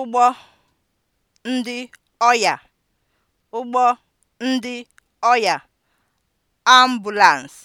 ụgbọ ndị ọya ụgbọ ndị ọya (ambulance)